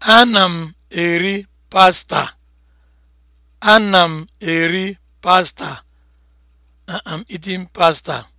Ana m eri pasta. Ana m eri pasta. Uh-uh, I'm eating pasta.